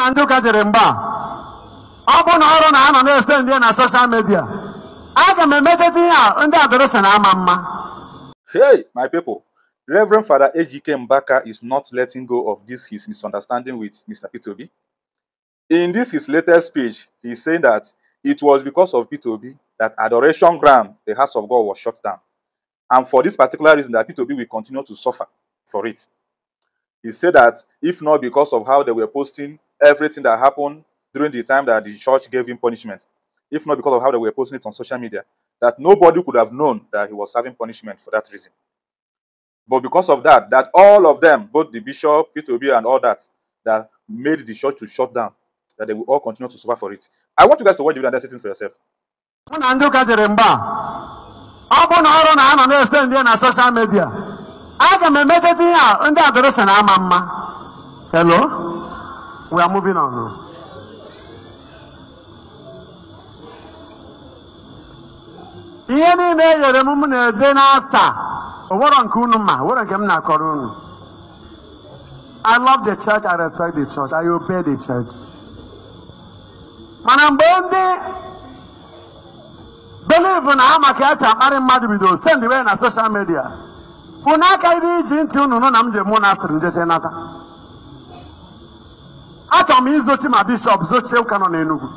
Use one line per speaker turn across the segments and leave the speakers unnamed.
na ndị ụka jere mgba ọ bụ na ọrụ na na na-ese ndị na soshal midia aga m ihe a ndị ama mma
hey my people reverend father ejike mbaka is not letting go of this his misunderstanding with mr pitobi in this his latest speech he saying that it was because of pitobi that adoration ground the house of god was shut down and for this particular reason that pitobi will continue to suffer for it he said that if not because of how they were posting everything that happened during the time that the church gave him punishment, if not because of how they were posting it on social media, that nobody could have known that he was serving punishment for that reason. But because of that, that all of them, both the bishop, Peter Obi, and all that, that made the church to shut down, that they will all continue to suffer for it. I want you guys to watch the video and for yourself.
social media, Hello? We are moving on. ihe niile e nyere m m na-ede n'asa onwero nke unu ma nwere nke m na-akọrọ unu I love the church, I respect the church, I obey the church. mana mgbe ndị believe na ha maka esi akparị mmadụ bidoro send way na social media unu aka iri iji ntị unu na m je asịrị njeche nata achọrọ m izochi ma bishọp zochie ụka nọ n'enugwu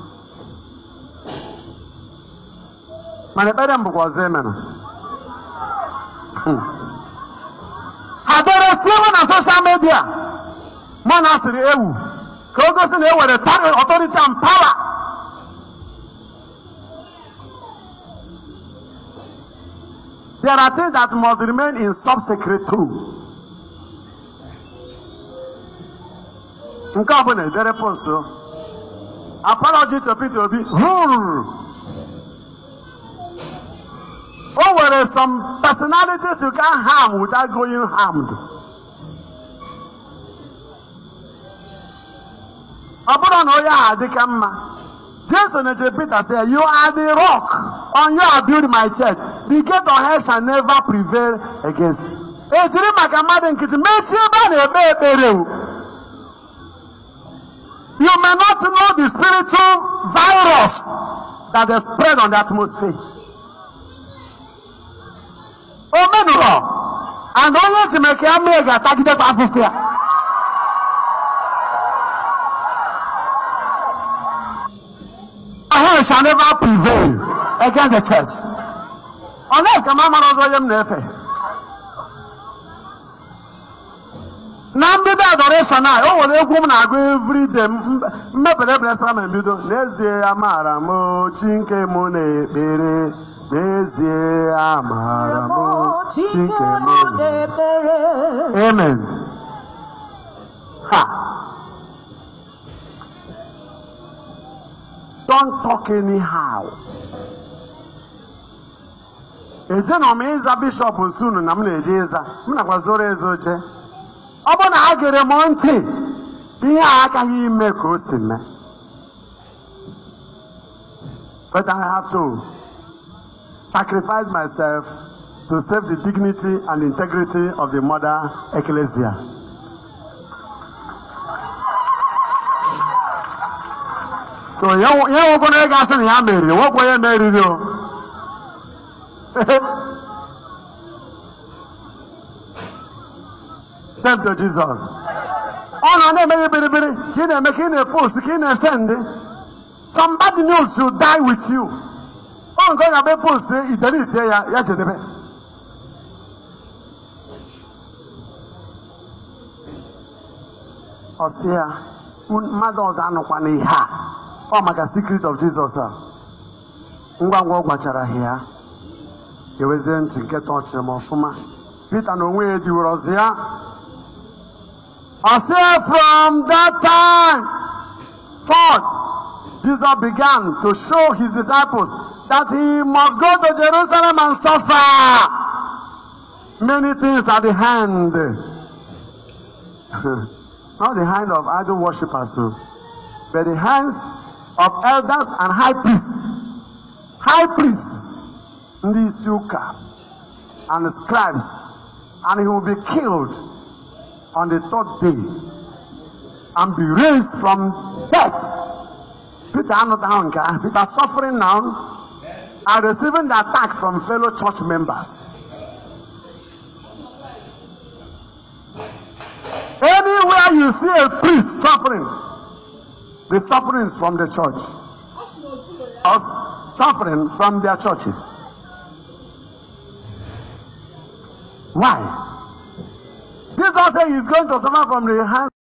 mana ekpere m bụkwa ọzọ emere ha dere na soshal midia monastri ewu ka o gosi na e were tari and pawa there are things that must remain in sub-secret too. nke ọ bụ na ederepụ nso apology to Peter Obi ruru o nwere some personalities you can harm without going harmed ọ bụrụ na onye ahụ adịka mma Jason eche Peter say you are the rock on you I build my church the gate of hell shall never prevail against ejiri maka mmadụ nkịtị mechie ebe a na-ekpe ekpere You may not know the spiritual virus that is spread on the atmosphere. O menụrụ, and onye Chineke ama ga-atagidekwa afụfụ ya. Hell shall never prevail against the church. Unless ka m amara ọzọ onye m na mbido adoration a o nwere egwu m na-agụ everyday mmebere blesara na mbido n'ezie amaara m chi nke na-ekpere n'ezie amaara maara m chi nke m
na-ekpere
amen ha don't talk anyhow ejenọ m ịza bishọp nsunu na m na-eje ịza m nakwa zoro ezo oche ọ bụ na a gere m ntị ihe a agaghị ime ka o si mee but I have to sacrifice myself to save the dignity and integrity of the mother ecclesia. so ihe nwoke na ị ga-asị na ya meriri nwoke onye meriri o them to Jesus. Ọ na na-eme ihe biribiri ka ị na-eme ka ị na-epost ka ị Some bad news should die with you. Ọ nke ọ ga-abịa post idelitie ya ya jedebe. Ọ sị ya mmadụ ọzọ anụkwa n'ihe a ọ maka secret of Jesus a ngwa ngwa ọ gwachara ha ya ewezie ntị nke tọchịrị m ọfụma Pita na onwe ya ediwere ọzọ ya say, from that time forth jesus began to show his disciples that he must go to jerusalem and suffer many things at the hand not the hand of idol worshippers o but the hands of elders and high priests high priests ndị isi ụka and scribes and he will be killed on the third day and be raised from death. Peter another nka Peter suffering now and receiving the attack from fellow church members. Anywhere you see a priest suffering, the suffering is from the church. Or suffering from their churches. Why? Jesus said he's going to suffer from the hands